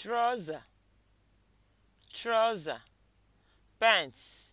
trọza trọza pants